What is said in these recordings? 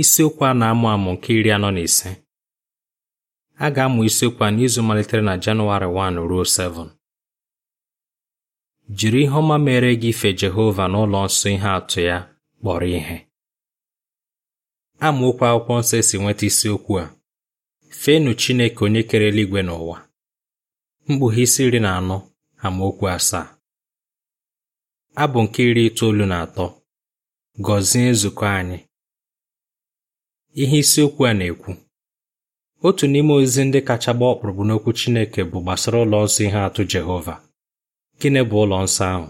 isiokwu a na-amụ amụ nke iri anọ na ise a ga-amụ isiokwu a n'izu malitere na Janụwarị 1 ruo 7 jiri ihe ọma mere gị ife Jehova n'ụlọ nsọ ihe atụ ya kpọrọ ihe amaokwu akwụkwọ nsọ e si nweta isiokwu a fenu Chineke onye kere eluigwe n'ụwa. mkpughe isi iri na anọ amaokwu asaa abụ nke iri itoolu na atọ gọzie nzukọ anyị ihe isiokwu a na-ekwu otu n'ime ozi ndị kacha gba ọkpụrụkpụ n'okwu Chineke bụ gbasara ụlọ nsọ ihe atụ Jehova gịnị bụ ụlọ nsọ ahụ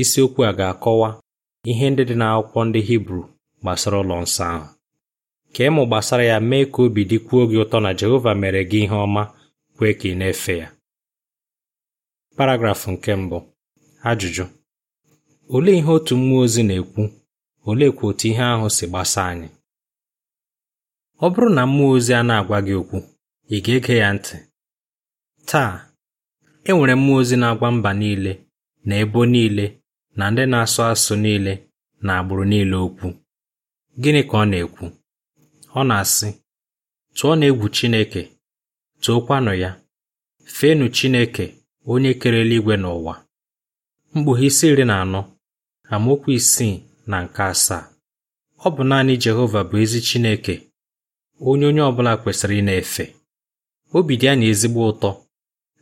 isiokwu a ga-akọwa ihe ndị dị n'akwụkwọ ndị Hibru gbasara ụlọ nsọ ahụ ka ịmụ gbasara ya mee ka obi dịkwuo gị ụtọ na Jehova mere gị ihe ọma kwee ka ị na-efe ya paragrafụ nke mbụ ajụjụ olee ihe otu mmụọ ozi na-ekwu oleekwa otu ihe ahụ si gbasa anyị ọ bụrụ na mmụọ ozi a na-agwa gị okwu ị ga-ege ya ntị taa e nwere mmụọ ozi na-agwa mba niile na ebo niile na ndị na-asụ asụ niile na agbụrụ niile okwu gịnị ka ọ na-ekwu ọ na-asị tụọ na egwu Chineke tụọkwanụ ya feenụ Chineke onye kerela igwe n'ụwa mkpughe isi iri na anọ amaokwu isii na nke asaa ọ bụ naanị Jehova bụ ezi Chineke onye onye ọbụla kwesịrị ị na-efe obi dị anyị ezigbo ụtọ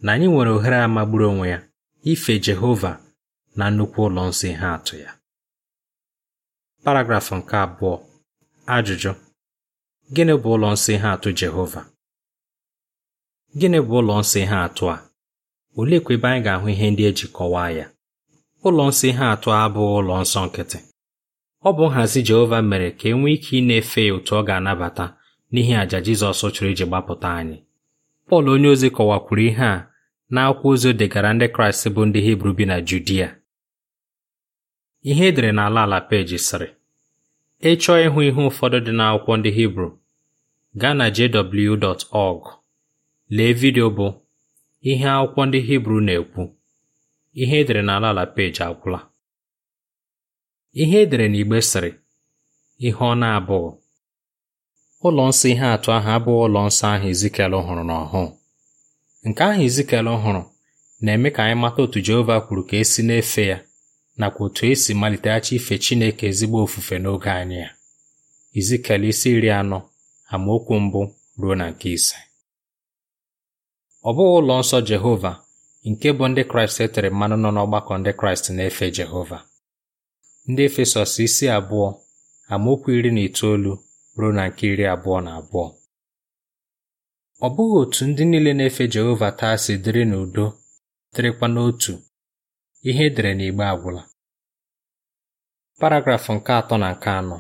na anyị nwere ohere a magburu onwe ya ife Jehova na nnukwu ụlọ nsọ ihe atụ ya paragrafụ nke abụọ ajụjụ gịnị bụ ụlọ nsọ ihe atụ Jehova gịnị bụ ụlọ nsọ ihe atụ a oleekwa ebe anyị ga-ahụ ihe ndị eji kọwaa ya ụlọ nsọ ihe atụ abụghị ụlọ nsọ nkịtị ọ bụ nhazi Jehova mere ka e nwee ike ị na-efe ya otu ọ ga-anabata n'ihi àjà Jizọs chụrụ iji gbapụta anyị Pọl onyeozi kọwakwuru ihe a n'akwụkwọ ozi o degara ndị Kraịst bụ ndị Hibru bi na Judia ihe edere n'ala ala peji sịrị ịchọọ ịhụ ihe ụfọdụ dị n'akwụkwọ ndị Hibru gaa na jw.org lee vidio bụ ihe akwụkwọ ndị Hibru na-ekwu ihe edere n'ala ala peji agwụla ihe edere n'igbe sịrị ihe ọ na-abụghị ụlọ nsọ ihe atụ ahụ abụghị ụlọ nsọ ahụ ezikel hụrụ n'ọhụụ nke ahụ ezikel hụrụ na-eme ka anyị mata otu Jehova kwuru ka esi na-efe ya nakwa otu esi maliteghachi ife Chineke ezigbo ofufe n'oge anyị ya izikel isi iri anọ amaokwu mbụ ruo na nke ise ọ bụghị ụlọ nsọ Jehova nke bụ ndị Kraịst e tere mmanụ nọ n'ọgbakọ ndị Kraịst na-efe Jehova ndị Efesọs isi abụọ amaokwu iri na itoolu ruo na nke iri abụọ na abụọ ọ bụghị otu ndị niile na-efe Jehova taa si dịrị n'udo dịrịkwa n'otu ihe edere n'igbe agwụla paragrafụ nke atọ na nke anọ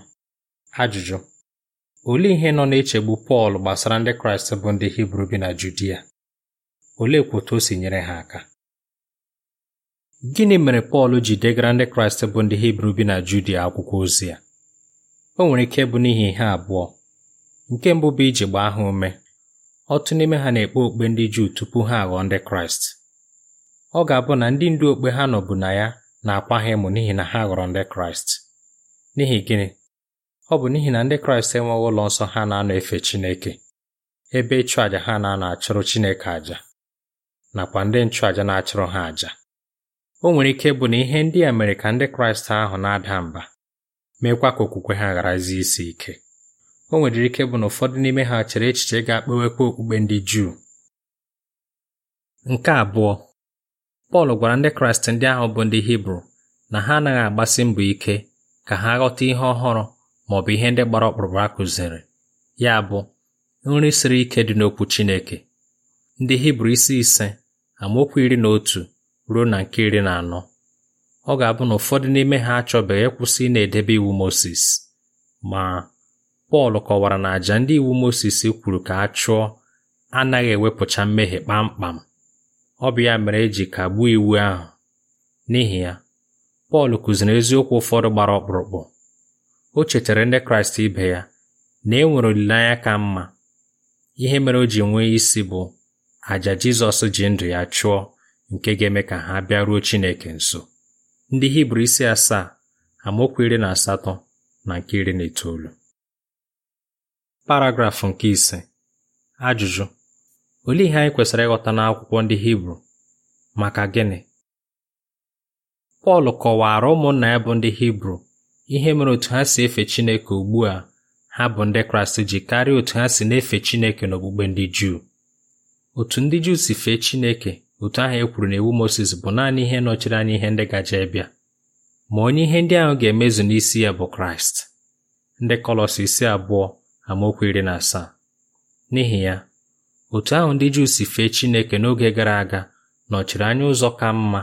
ajụjụ olee ihe nọ na-echegbu Pọl gbasara ndị Kraịst bụ ndị Hibru bi na Judia Olee otu o si nyere ha aka gịnị mere Pọl ji degara ndị Kraịst bụ ndị Hibru bi na Judia akwụkwọ ozi ya o nwere ike bụ n'ihi ihe abụọ nke mbụ bụ iji gbaa ha ume ọtụ n'ime ha na-ekpe okpe ndị Juu tupu ha aghọọ ndị Kraịst ọ ga-abụ na ndị ndu okpe ha nọbụ na ya na-akwa ha ịmụ n'ihi na ha ghọrọ ndị Kraịst n'ihi gịnị ọ bụ n'ihi na ndị Kraịst enweghị ụlọ nsọ ha na-anọ efe Chineke ebe ịchụ àjà ha na-anọ achụrụ Chineke àjà nakwa ndị nchụàjà na-achụrụ ha àjà o nwere ike bụ na ihe ndị a mere ka ndị Kraịst ahụ na-ada mba meekwa ka okwukwe ha gharazie isi ike o nwedịrị ike bụ na ụfọdụ n'ime ha chere echiche ga-akpawekwa okpukpe ndị Juu nke abụọ Pọl gwara ndị Kraịst ndị ahụ bụ ndị Hibru na ha anaghị agbasi mbọ ike ka ha ghọta ihe ọhụrụ ma ọ bụ ihe ndị gbara ọkpụrụkpụ a kụziri ya bụ nri siri ike dị n'okwu Chineke ndị Hibru isi ise amaokwu iri na otu ruo na nke iri na anọ ọ ga-abụ na ụfọdụ n'ime ha achọbeghị ịkwụsị na-edebe iwu Mozis ma Pọl kọwara na àjà ndị iwu Mozis kwuru ka a chụọ anaghị ewepụcha mmehie kpamkpam ọ bụ ya mere eji kagbuo iwu ahụ n'ihi ya Pọl kụziri eziokwu ụfọdụ gbara ọkpụrụkpụ o chetara ndị Kraịst ibe ya na e nwere olileanya ka mma ihe mere o ji nwee isi bụ àjà Jizọs ji ndụ ya chụọ nke ga-eme ka ha bịaruo Chineke nso ndị hibru isi asaa amaokwu iri na asatọ na nke iri na itoolu paragrafụ nke ise ajụjụ olee ihe anyị kwesịrị ịghọta n'akwụkwọ ndị hibru maka gịnị pọl kọwara ụmụnna ya bụ ndị hibru ihe mere otu ha si efe chineke ugbu a ha bụ ndị kraịst ji karịa otu ha si na-efe chineke n'okpukpe ndị juu otu ndị juu si fee chineke otu ahụ e kwuru na iwu Mozis bụ naanị ihe nọchiri anya ihe ndị gaje bịa ma onye ihe ndị ahụ ga-emezu n'isi ya bụ Kraịst ndị Kọlọs isi abụọ amaokwu iri na asaa n'ihi ya otu ahụ ndị Juu si fee Chineke n'oge gara aga nọchiri anya ụzọ ka mma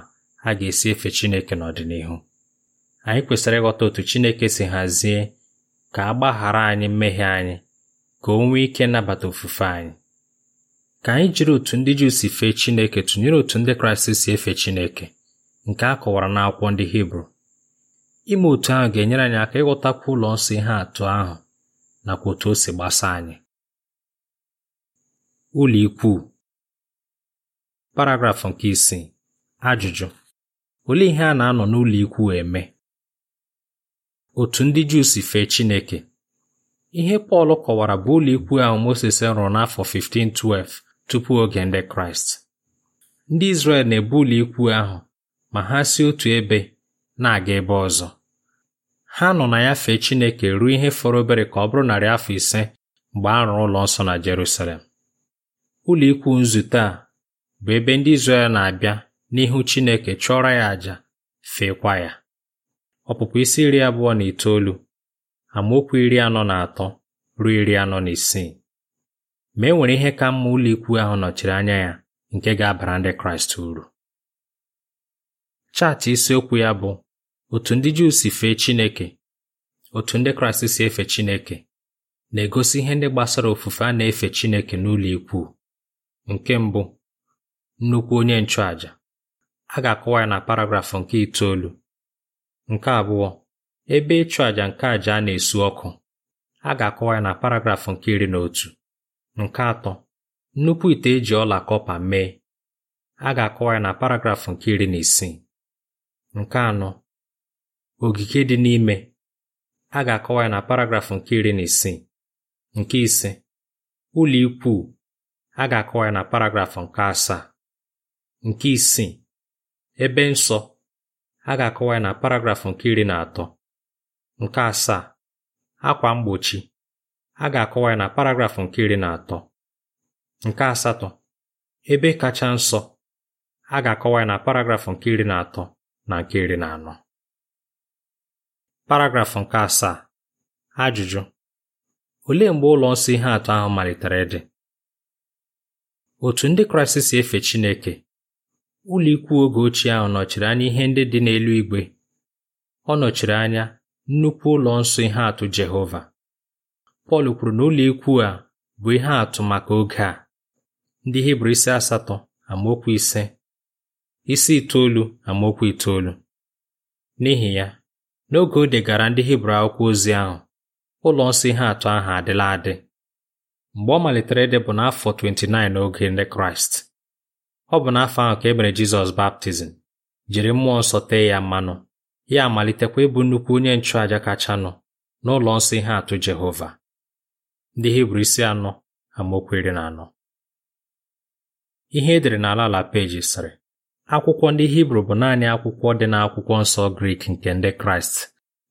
a ga-esi efe Chineke n'ọdịnihu anyị kwesịrị ịghọta otu Chineke si hazie ka a gbaghara anyị mmehie anyị ka o nwee ike nabata ofufe anyị ka anyị jiri otu ndị Juu si fee Chineke tụnyere otu ndị Kraịst si efe Chineke nke a kọwara n'akwụkwọ ndị Hibru ime otu ahụ ga-enyere anyị aka ịghọtakwa ụlọ nsọ ihe atụ ahụ nakwa otu o si gbasa anyị ụlọ ikwu paragrafụ nke isii ajụjụ olee ihe a na-anọ n'ụlọ ikwu eme otu ndị Juu si fee Chineke ihe Pọl kọwara bụ ụlọikwu ahụ Moses rụrụ n'afọ 1512 tupu oge ndị Kraịst ndị Izrel na ụlọ ikwu ahụ ma ha si otu ebe na-aga ebe ọzọ ha nọ na ya fee Chineke ruo ihe fọrọ obere ka ọ bụrụ narị afọ ise mgbe a rụrụ ụlọ nsọ na Jerusalem ụlọ ikwu nzute a bụ ebe ndị Izrel na-abịa n'ihu Chineke chụọrọ ya àjà feekwa ya ọpụpụ isi iri abụọ na itoolu amaokwu iri anọ na atọ ruo iri anọ na isii ma e nwere ihe ka mma ụlọikwu ahụ nọchiri anya ya nke ga-abara ndị Kraịst uru chaatị isiokwu ya bụ otu ndị Juu si fee Chineke otu ndị Kraịst si efe Chineke na-egosi ihe ndị gbasara ofufe a na-efe Chineke n'ụlọ ikwu nke mbụ nnukwu onye nchụàjà a ga-akọwa ya na paragrafụ nke itoolu nke abụọ ebe ịchụ àjà nke àjà a na-esu ọkụ a ga-akọwa ya na paragrafụ nke iri na otu Nke atọ nnukwu ite eji ọla kọpa mee a ga-akọwa ya na paragraf nke iri na isii nke anọ ogige dị n'ime a ga-akọwa ya na paragraf nke iri na isii nke ise ụlọ ikwu a ga-akọwa ya na paragraf nke asaa nke isii ebe nsọ a ga-akọwa ya na paragraf nke iri na atọ nke asaa akwa mgbochi a ga-akọwa ya na paragrafụ nke iri na atọ nke asatọ ebe kacha nsọ a ga-akọwa ya na paragrafụ nke iri na atọ na nke iri na anọ paragrafụ nke asaa ajụjụ olee mgbe ụlọ nsọ ihe atụ ahụ malitere dị? otu ndị kraịst si efe chineke ụlọ ikwu oge ochie ahụ nọchiri anya ihe ndị dị n'elu igwe ọ nọchiri anya nnukwu ụlọ nsọ ihe atụ jehova Pọl kwuru na ụlọikwu a bụ ihe atụ maka oge a ndị Hibru isi asatọ amaokwu ise isi itoolu amaokwu itoolu n'ihi ya n'oge o degara ndị Hibru akwụkwọ ozi ahụ ụlọ nsọ ihe atụ ahụ adịla adị mgbe ọ malitere ịdị bụ n'afọ 29 n'oge ndị Kraịst ọ bụ n'afọ ahụ ka e mere Jizọs baptizim jiri mmụọ nsọ tee ya mmanụ ya amalitekwa ịbụ nnukwu onye nchụàja kachanụ n'ụlọ nsọ ihe atụ Jehova ndị hibru isi anọ amaokwu iri na anọ ihe edere n'ala ala peji sịrị akwụkwọ ndị hibru bụ naanị akwụkwọ dị n'akwụkwọ nsọ grik nke ndị kraịst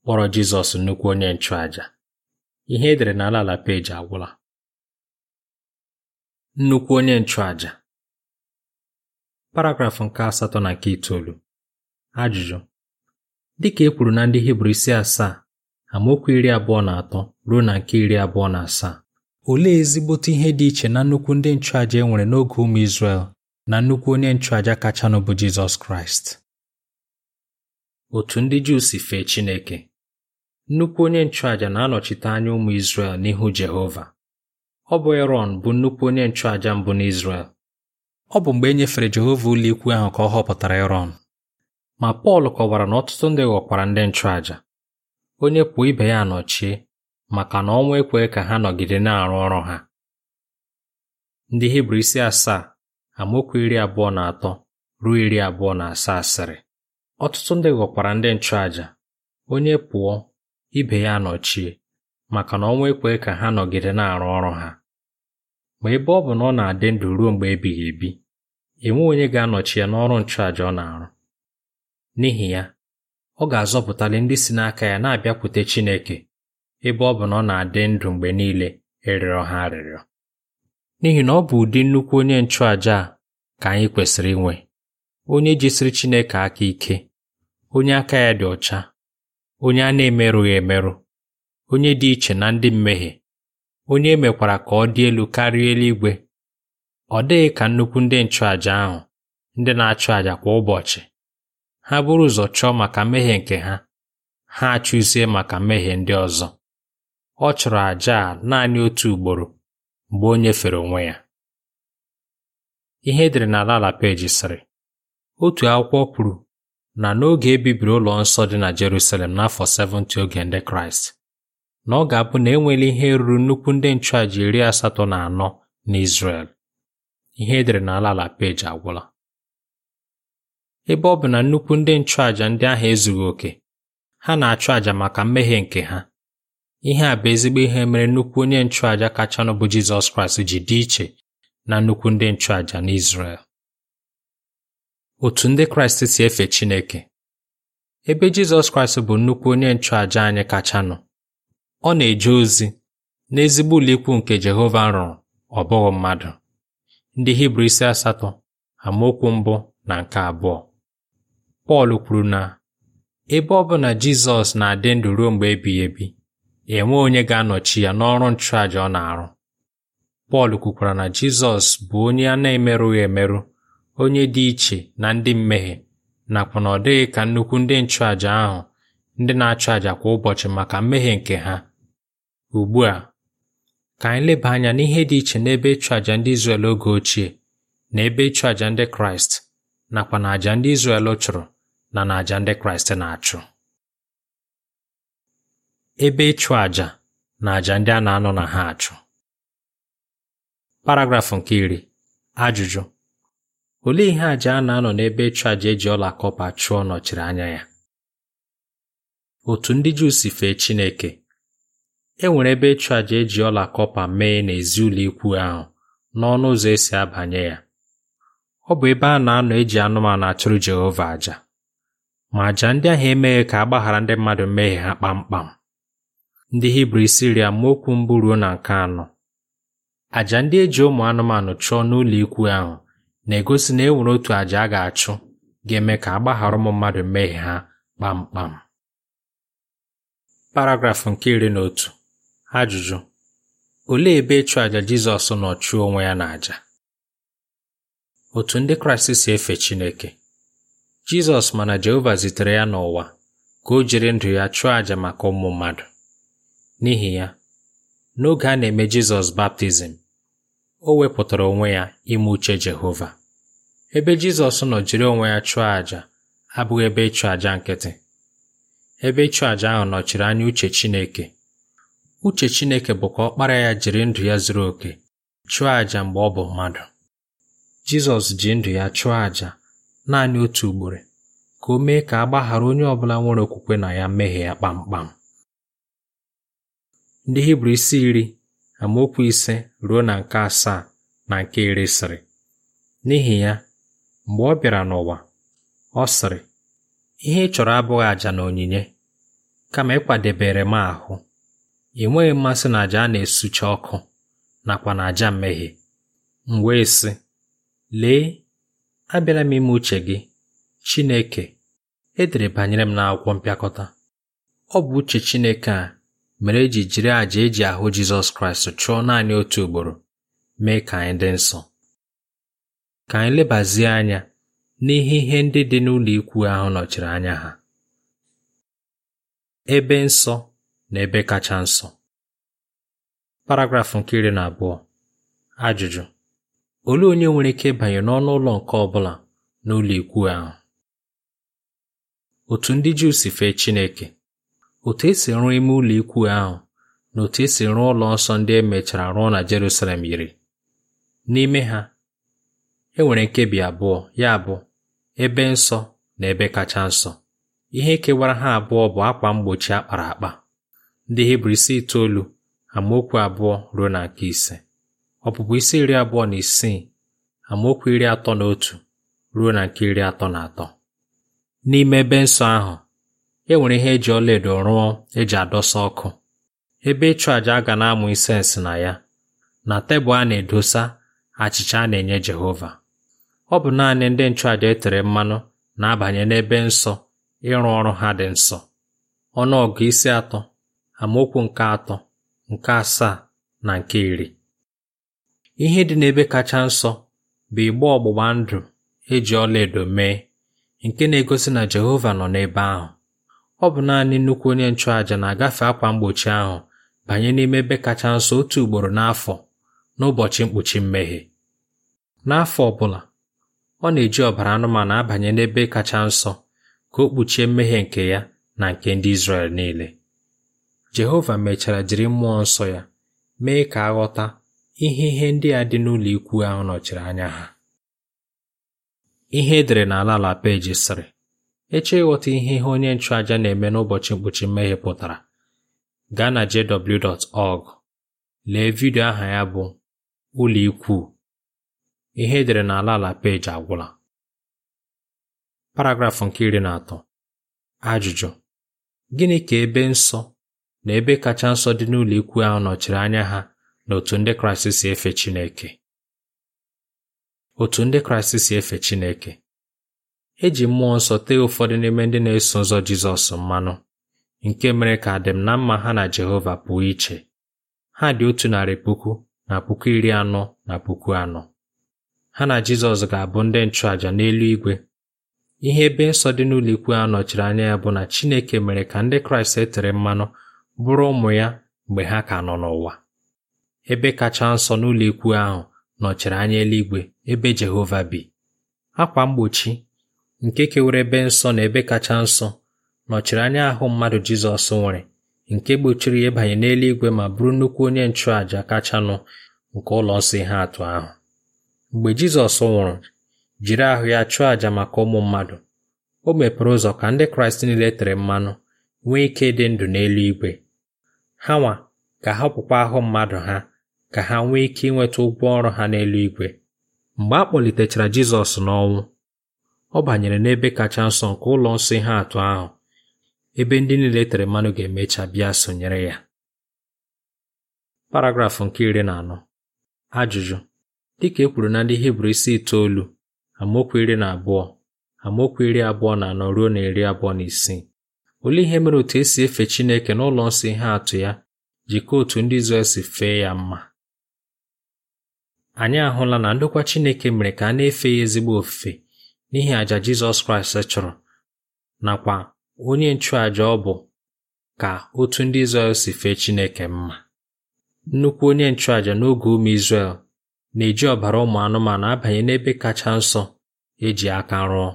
kpọrọ jizọs nnukwu onye nchụàjà ihe edere n'ala ala peji agwụla nnukwu onye nchụàjà paragrafụ nke asatọ na nke itoolu ajụjụ dịka e kwuru na ndị hibru isi asaa amaokwu iri abụọ na atọ ruo na nke iri abụọ na asaa olee ezigbote ihe dị iche na nnukwu ndị nchụàjà e nwere n'oge ụmụ Izrel na nnukwu onye nchụàjà kachanụ bụ Jizọs Kraịst otu ndị Juu si fee Chineke nnukwu onye nchụàjà na-anọchite anya ụmụ Izrel n'ihu Jehova ọ bụ Erọn bụ nnukwu onye nchụàjà mbụ n'Izrel ọ bụ mgbe e nyefere Jehova ụlọikwu ahụ ka ọ họpụtara Erọn ma Pọl kọwara na ọtụtụ ndị ghọkwara ndị nchụàjà onye pụọ ibe ya nọchie maka na ọnwa ekwe ka ha nọgide na-arụ ọrụ ha ndị hibru isi asaa amaokwu iri abụọ na atọ ruo iri abụọ na asaa asịrị ọtụtụ ndị ghọkwara ndị nchụàjà onye pụọ ibe ya nọchie maka na ọnwa ekwe ka ha nọgide na-arụ ọrụ ha ma ebe ọ bụ na ọ na-adị ndụ ruo mgbe ebighị ebi enwe onye ga-anọchi ya n'ọrụ nchụàjà ọ na-arụ n'ihi ya ọ ga-azọpụtali ndị si n'aka ya na-abịakwute Chineke ebe ọ bụ na ọ na-adị ndụ mgbe niile ịrịọ e ha arịrịọ n'ihi na ọ bụ ụdị nnukwu onye nchụàja a ka anyị kwesịrị inwe onye jisiri Chineke aka ike onye aka ya dị ọcha onye a na-emerụghị emerụ onye dị iche na ndị mmehie onye emekwara ka ọ dị elu karịa eluigwe ọ dịghị ka nnukwu ndị nchụàja ahụ ndị na-achụ àjà kwa ụbọchị ha buru ụzọ chọọ maka mmehie nke ha ha achụzie maka mmehie ndị ọzọ ọ chọrọ àjà a naanị otu ugboro mgbe o nyefere onwe ya ihe edere n'ala ala peji sịrị otu akwụkwọ kwuru na n'oge e bibiri ụlọ nsọ dị na Jerusalem n'afọ 70 oge ndị Kraịst na ọ ga-abụ na enwela ihe ruru nnukwu ndị nchụàjà iri asatọ na anọ na Izrel ihe edere n'ala ala peji agwụla ebe ọ bụ na nnukwu ndị nchụàjà ndị ahụ ezughị oke ha na-achụ àjà maka mmehie nke ha ihe a bụ ezigbo ihe mere nnukwu onye nchụàjà kachanụ bụ Jizọs Kraịst ji dị iche na nnukwu ndị nchụàjà n'Izrel otu ndị Kraịst si efe Chineke ebe Jizọs Kraịst bụ nnukwu onye nchụàjà anyị kachanụ ọ na-eje ozi n'ezigbo ụlọikwu nke Jehova rụrụ ọ bụghị mmadụ ndị Hibru isi asatọ amaokwu mbụ na nke abụọ Pọl kwuru na ebe ọ bụ na Jizọs na-adị ndụ ruo mgbe ebighị ebi enwe onye ga-anọchi ya n'ọrụ nchụàja ọ na-arụ Pọl kwukwara na Jizọs bụ onye a na-emerụghị emerụ onye dị iche na ndị mmehie nakwa na ọ dịghị ka nnukwu ndị nchụàja ahụ ndị na-achụ àjà kwa ụbọchị maka mmehie nke ha ugbu a ka anyị leba anya n'ihe dị iche n'ebe ịchụ àjà ndị Izrel oge ochie na ebe ịchụ àjà ndị Kraịst nakwa na àjà ndị Izrel chụrụ na n'àjà ndị Kraịst na-achụ ebe ịchụ àjà na àjà ndị a na-anọ na ha achụ paragrafụ nke iri ajụjụ olee ihe àjà a na-anọ n'ebe ịchụ àjà eji ọla kọpa chụọ nọchiri anya ya otu ndị Juu si fee Chineke e nwere ebe ịchụ àjà eji ọla kọpa mee n'ezi ụlọ ikwu ahụ n'ọnụ ụzọ esi abanye ya ọ bụ ebe a na-anọ eji anụmanụ achụrụ Jehova àjà ma àjà ndị ahụ emeghị ka a gbaghara ndị mmadụ mmehie ha kpamkpam ndị hibru siria maokwu mbụ ruo na nke anọ àjà ndị eji ụmụ anụmanụ chụọ n'ụlọ ikwu ahụ na-egosi na e nwere otu àjà a ga-achụ ga-eme ka a gbaghara ụmụ mmadụ mmehie ha kpamkpam paragrafụ nke iri na otu ajụjụ olee ebe ịchụ àjà Jizọs nọ chụọ onwe ya n'àjà? Otu ndị Kraịst si efe Chineke Jizọs mana Jehova zitere ya n'ụwa ka o jiri ndụ ya chụọ àjà maka ụmụ mmadụ. N'ihi ya, n'oge a na-eme Jizọs baptizim, o wepụtara onwe ya ime uche Jehova. Ebe Jizọs nọ jiri onwe ya chụọ àjà abụghị ebe ịchụ àjà nkịtị. Ebe ịchụ àjà ahụ nọchiri anya uche Chineke. Uche Chineke bụ ka ọkpara ya jiri ndụ ya zuru oke chụọ àjà mgbe ọ bụ mmadụ. Jizọs ji ndụ ya chụọ àjà naanị otu ugboro ka o mee ka a gbaghara onye ọbụla nwere okwukwe na ya mmehie ya kpamkpam ndị hibru isi iri amaokwu ise ruo na nke asaa na nke iri siri, n'ihi ya mgbe ọ bịara n'ụwa ọ sịrị ihe ị chọrọ abụghị àjà na onyinye kama ịkwadebere m ahụ enweghị mmasị na àjà a na-esucha ọkụ nakwa na àjà mmehie m wee sị lee abịala m ime uche gị Chineke edere banyere m n'akwụkwọ mpịakọta ọ bụ uche Chineke a mere eji jiri àjà eji ahụ Jizọs Kraịst chụọ naanị otu ugboro mee ka anyị dị nsọ ka anyị lebazie anya n'ihe ihe ndị dị n'ụlọ ikwu ahụ nọchiri anya ha ebe nsọ na ebe kacha nsọ paragrafụ nke iri na abụọ ajụjụ olee onye nwere ike ịbanye n'ọnụ ụlọ nke ọ bụla n'ụlọ ikwu ahụ otu ndị Juu si fee Chineke otu esi rụọ ime ụlọ ikwu ahụ na otu esi rụọ ụlọ nsọ ndị e mechara rụọ na Jerusalem yiri n'ime ha e nwere nkebi abụọ ya bụ ebe nsọ na ebe kacha nsọ ihe kewara ha abụọ bụ akwa mgbochi akpara akpa ndị Hibru isi itoolu amaokwu abụọ ruo na nke ise ọpụpụ isi iri abụọ na isii amaokwu iri atọ na otu ruo na nke iri atọ na atọ n'ime ebe nsọ ahụ e nwere ihe eji ọlaedo rụọ eji adọsa ọkụ ebe ịchụ a ga na-amụ isensị na ya na tebụl a na-edosa achịcha a na-enye Jehova ọ bụ naanị ndị nchụàjà e tere mmanụ na-abanye n'ebe nsọ ịrụ ọrụ ha dị nsọ ọnụọgụ isi atọ amaokwu nke atọ nke asaa na nke iri Ihe dị n'ebe kacha nsọ bụ igbe ọgbụgba ndụ eji ọlaedo mee nke na-egosi na Jehova nọ n'ebe ahụ. Ọ bụ naanị nnukwu onye nchụàjà na-agafe akwa mgbochi ahụ banye n'ime ebe kacha nsọ otu ugboro n'afọ n'ụbọchị mkpuchi mmehie. N'afọ ọ bụla, ọ na-eji ọbara anụmanụ abanye n'ebe kacha nsọ ka o kpuchie mmehie nke ya na nke ndị Izrel niile. Jehova mechara jiri mmụọ nsọ ya mee ka a ghọta ihe ihe ndị a dị n'ụlọ ikwu ahụ nọchiri anya ha ihe edere n'ala ala peji sịrị eche ịghọta ihe ihe onye nchụaja na-eme n'ụbọchị mkpuchi mmehie pụtara gaa na jw.org lee vidio aha ya bụ ụlọ ikwu ihe edere n'ala ala peji agwụla paragrafụ nke iri na atọ ajụjụ gịnị ka ebe nsọ na ebe kacha nsọ dị n'ụlọ ikwu ahụ nọchiri anya ha na otu ndị Kraịst si efe Chineke otu ndị Kraịst si efe Chineke eji mmụọ nsọ tee ụfọdụ n'ime ndị na-eso ụzọ Jizọs mmanụ nke mere ka adịm na mma ha na Jehova pụọ iche ha dị otu narị puku na puku iri anọ na puku anọ ha na Jizọs ga-abụ ndị nchụàjà n'elu igwe ihe ebe nsọ dị n'ụlọ a nọchiri anya ya bụ na Chineke mere ka ndị Kraịst e tere mmanụ bụrụ ụmụ ya mgbe ha ka nọ n'ụwa ebe kacha nsọ n'ụlọ ikwu ahụ nọchiri anya eluigwe ebe Jehova bi akwa mgbochi nke kewere ebe nsọ na ebe kacha nsọ nọchiri anya ahụ mmadụ Jizọs nwere nke gbochiri ya ịbanye n'eluigwe ma bụrụ nnukwu onye nchụàja kachanụ nke ụlọ nsọ ihe atụ ahụ mgbe Jizọs nwụrụ jiri ahụ ya chụọ àjà maka ụmụ mmadụ o mepere ụzọ ka ndị Kraịst niile tere mmanụ nwee ike ịdị ndụ n'eluigwe ha nwa ha pụkwa ahụ mmadụ ha ka ha nwee ike inweta ụgwọ ọrụ ha n'eluigwe mgbe a kpọlitechara Jizọs n'ọnwụ ọ banyere n'ebe kacha nsọ nke ụlọ nsọ ihe atụ ahụ ebe ndị niile tere mmanụ ga-emecha bịa sonyere ya paragrafụ nke iri na anọ ajụjụ dịka e kwuru na ndị Hibru isi itoolu amaokwu iri na abụọ amaokwu iri abụọ na anọ ruo na iri abụọ na isii olee ihe mere otu esi efe Chineke n'ụlọ nsọ ihe atụ ya ji otu ndị Izrel si fee ya mma anyị ahụla na ndokwa Chineke mere ka a na-efe ya ezigbo ofufe n'ihi aja Jizọs Kraịst chọrọ nakwa onye nchụàjà ọ bụ ka otu ndị Izrel si fee Chineke mma nnukwu onye nchụàjà n'oge ụmụ Izrel na-eji ọbara ụmụ anụmanụ abanye n'ebe kacha nsọ eji aka rụọ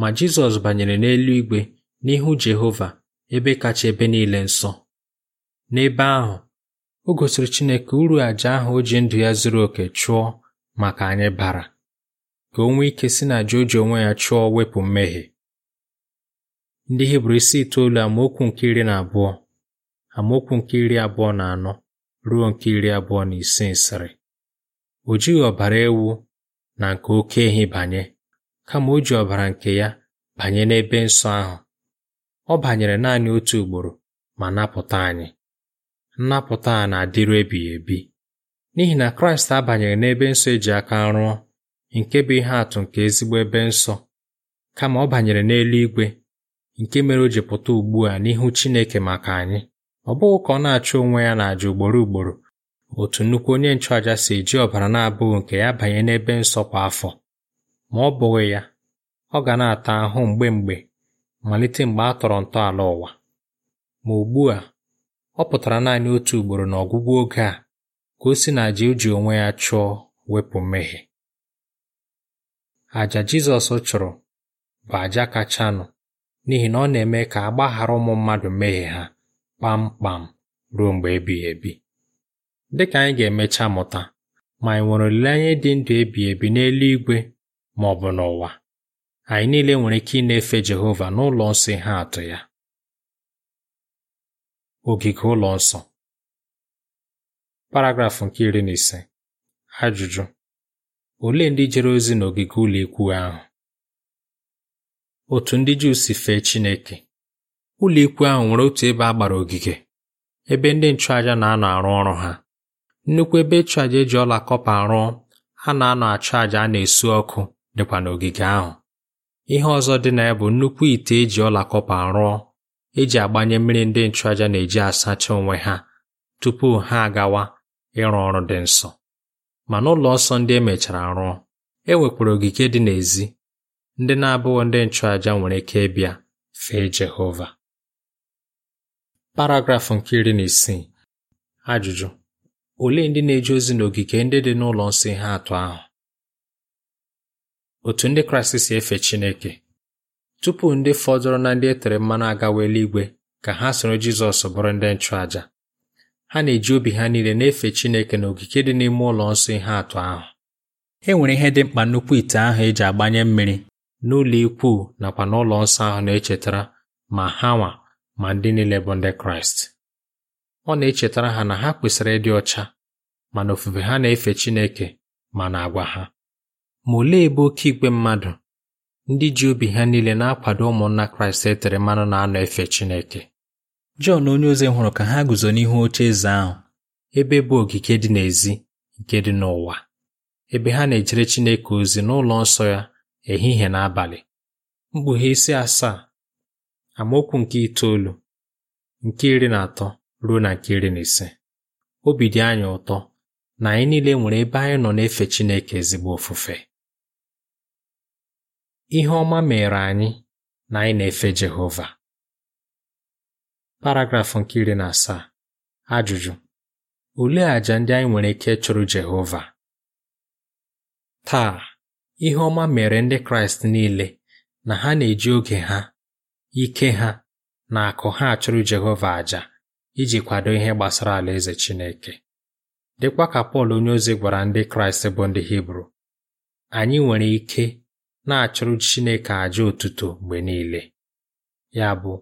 ma Jizọs banyere n'elu igwe n'ihu Jehova ebe kacha ebe niile nsọ n'ebe ahụ o gosiri Chineke uru àjà ahụ o ji ndụ ya zuru oke chụọ maka anyị bara ka o nwee ike si na àjà onwe ya chụọ wepụ mmehie ndị Hibru isi itoolu amaokwu nke iri na abụọ amaokwu nke iri abụọ na anọ ruo nke iri abụọ na ise nsịrị o jighị ọbara ewu na nke oke ehi banye kama o ji ọbara nke ya banye n'ebe nsọ ahụ ọ banyere naanị otu ugboro ma napụta anyị nnapụta a na-adịru ebighị ebi n'ihi na Kraịst abanyere n'ebe nsọ eji aka rụọ nke bụ ihe atụ nke ezigbo ebe nsọ kama ọ banyere n'eluigwe nke mere o ji pụta ugbu a n'ihu Chineke maka anyị ọ bụghị ka ọ na-achụ onwe ya na n'àjà ugboro ugboro otu nnukwu onye nchụàja si eji ọbara na-abụghị nke ya banye n'ebe nsọ kwa afọ ma ọ bụghị ya ọ ga na-ata ahụ mgbe mgbe malite mgbe a tọrọ ntọala ụwa ma ugbu a ọ pụtara naanị otu ugboro n'ọgwụgwụ oge a ka o si na àjà e ji onwe ya chụọ wepụ mmehie àjà Jizọs chụrụ bụ àjà kachanụ n'ihi na ọ na-eme ka a gbaghara ụmụ mmadụ mmehie ha kpamkpam ruo mgbe ebighị ebi dị ka anyị ga-emecha mụta ma anyị nwere olileanya dị ndụ ebighị ebi n'eluigwe ma ọ bụ n'ụwa anyị niile nwere ike ịna-efe Jehova n'ụlọ nsọ ihe atụ ya ogige ụlọ nsọ paragrafụ nke iri na ise ajụjụ olee ndị jere ozi n'ogige ụlọ ikwu ahụ otu ndị Juu si fee Chineke ụlọ ikwu ahụ nwere otu ebe a gbara ogige ebe ndị nchụaja na-anọ arụ ọrụ ha nnukwu ebe ịchụ eji ọla kọpa rụọ a na-anọ achụ a na-esu ọkụ dịkwa n'ogige ahụ ihe ọzọ dị na ya bụ nnukwu ite eji ọla kọpa rụọ eji agbanye mmiri ndị nchụàjà na-eji asacha onwe ha tupu ha agawa ịrụ ọrụ dị nsọ ma n'ụlọ nsọ ndị emechara rụọ e nwekwara ogige dị n'èzí ndị na-abụghị ndị nchụàjà nwere ike ịbịa fee Jehova paragrafụ nke iri na isii ajụjụ olee ndị na-eje ozi n'ogige ndị dị n'ụlọ nsọ ihe atụ ahụ otu ndị Kraịst si efe Chineke Tupu ndị fọdụrụ na ndị e tere mmanụ agawa eluigwe ka ha soro Jizọs bụrụ ndị nchụàja ha na-eji obi ha niile na-efe Chineke na ogige dị n'ime ụlọ nsọ ihe atụ ahụ e nwere ihe dị mkpa nnukwu ite ahụ eji agbanye mmiri n'ụlọ ikwu nakwa n'ụlọ nsọ ahụ na-echetara ma ha nwa ma ndị niile bụ ndị Kraịst ọ na-echetara ha na ha kwesịrị ịdị ọcha na ofufe ha na-efe Chineke ma na agwa ha ma olee ebe oke igwe mmadụ ndị ji obi ha niile na-akwado ụmụnna Kraịst e tere mmanụ na-anọ efe Chineke Jọn onyeozi hụrụ ka ha guzo n'ihu oche eze ahụ ebe bụ ogige dị n'èzí nke dị n'ụwa ebe ha na-ejere Chineke ozi n'ụlọ nsọ ya ehihie na abalị mkpughe isi asaa amaokwu nke itoolu nke iri na atọ ruo na nke iri na ise obi dị anyị ụtọ na anyị niile nwere ebe anyị nọ na-efe Chineke ezigbo ofufe ihe ọma mere anyị na anyị na-efe Jehova paragrafụ nke iri na asaa ajụjụ olee àjà ndị anyị nwere ike chụrụ Jehova taa ihe ọma mere ndị Kraịst niile na ha na-eji oge ha ike ha na akụ ha achụrụ Jehova àjà iji kwado ihe gbasara Alaeze Chineke dịkwa ka Pọl onyeozi gwara ndị Kraịst bụ ndị Hibru anyị nwere ike na-achụrụ Chineke àjà otuto mgbe niile ya bụ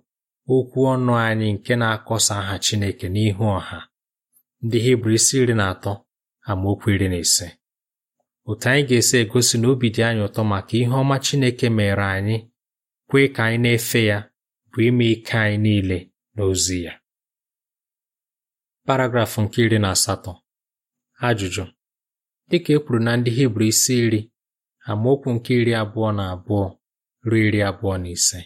okwu ọnụ anyị nke na-akọsa aha Chineke n'ihu ọha ndị Hibru isi iri na atọ amaokwu iri na ise otu anyị ga-esi egosi na obi dị anyị ụtọ maka ihe ọma Chineke mere anyị kwee ka anyị na-efe ya bụ ime ike anyị niile n'ozi ya paragrafụ nke iri na asatọ ajụjụ dịka e kwuru na ndị Hibru isi iri amaokwu nke iri abụọ na abụọ ruo iri abụọ na ise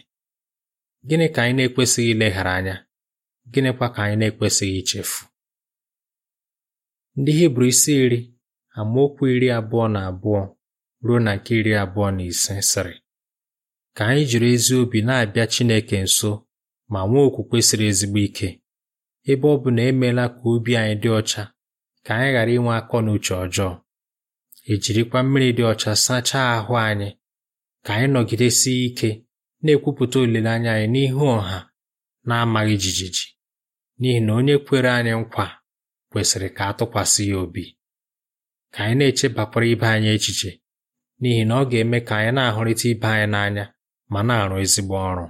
gịnị ka anyị na-ekwesịghị ileghara anya gịnịkwa ka anyị na-ekwesịghị ichefu ndị hibru isi iri amaokwu iri abụọ na abụọ ruo na nke iri abụọ na ise sịrị ka anyị jiri ezi obi na-abịa Chineke nso ma nwee okwukwe siri ezigbo ike ebe ọ bụ na emeela ka obi anyị dị ọcha ka anyị ghara inwe akọ na uche ọjọọ ejirikwa mmiri dị ọcha sachaa ahụ anyị ka anyị nọgidesie ike na-ekwupụta olileanya anyị n'ihu ọha na-amaghị jijiji n'ihi na onye kwere anyị nkwa kwesịrị ka a tụkwasị ya obi ka anyị na-echebakwara ibe anyị echiche n'ihi na ọ ga-eme ka anyị na-ahụrịta ibe anyị n'anya ma na-arụ ezigbo ọrụ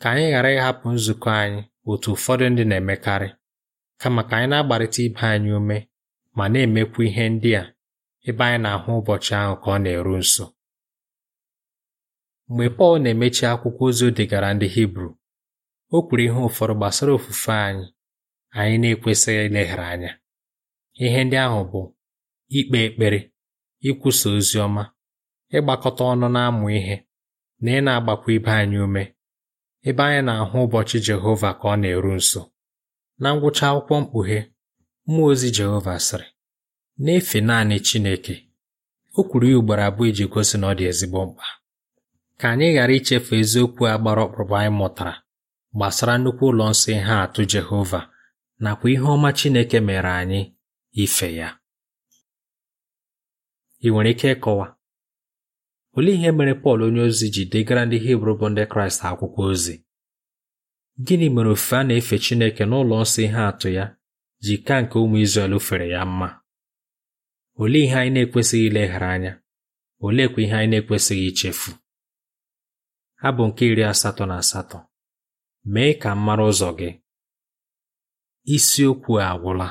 ka anyị ghara ịhapụ nzukọ anyị otu ụfọdụ ndị na-emekarị kama ka anyị na-agbarịta ibe anyị ume ma na-emekwu ihe ndị a ebe anyị na-ahụ ụbọchị ahụ ka ọ na-eru nso mgbe Pọl na-emechi akwụkwọ ozi o degara ndị Hibru o kwuru ihe ụfọdụ gbasara ofufe anyị anyị na-ekwesịghị ileghara anya ihe ndị ahụ bụ ikpe ekpere ikwusa ozi ọma ịgbakọta ọnụ na-amụ ihe na ị na-agbakwa ibe anyị ume ebe anyị na-ahụ ụbọchị Jehova ka ọ na-eru nso na ngwụcha akwụkwọ mkpughe mmụọ ozi Jehova sịrị na-efe naanị Chineke o kwuru ya ugboro abụọ iji gosi na ọ dị ezigbo mkpa ka anyị ghara ichefu eziokwu a gbara anyị mụtara gbasara nnukwu ụlọ nsọ ihe atụ Jehova nakwa ihe ọma Chineke mere anyị ife ya ị nwere ike ịkọwa olee ihe mere Pọl onyeozi ji degara ndị Hibru bụ ndị Kraịst akwụkwọ ozi gịnị mere ofufe a na-efe Chineke n'ụlọ nsọ ihe atụ ya ji ka nke ụmụ Izrel fere ya mma olee ihe anyị na-ekwesịghị ileghara anya oleekwa ihe anyị na-ekwesịghị ichefu bụ nke iri asatọ na asatọ mee ka m mara ụzọ gị isiokwu a agwụla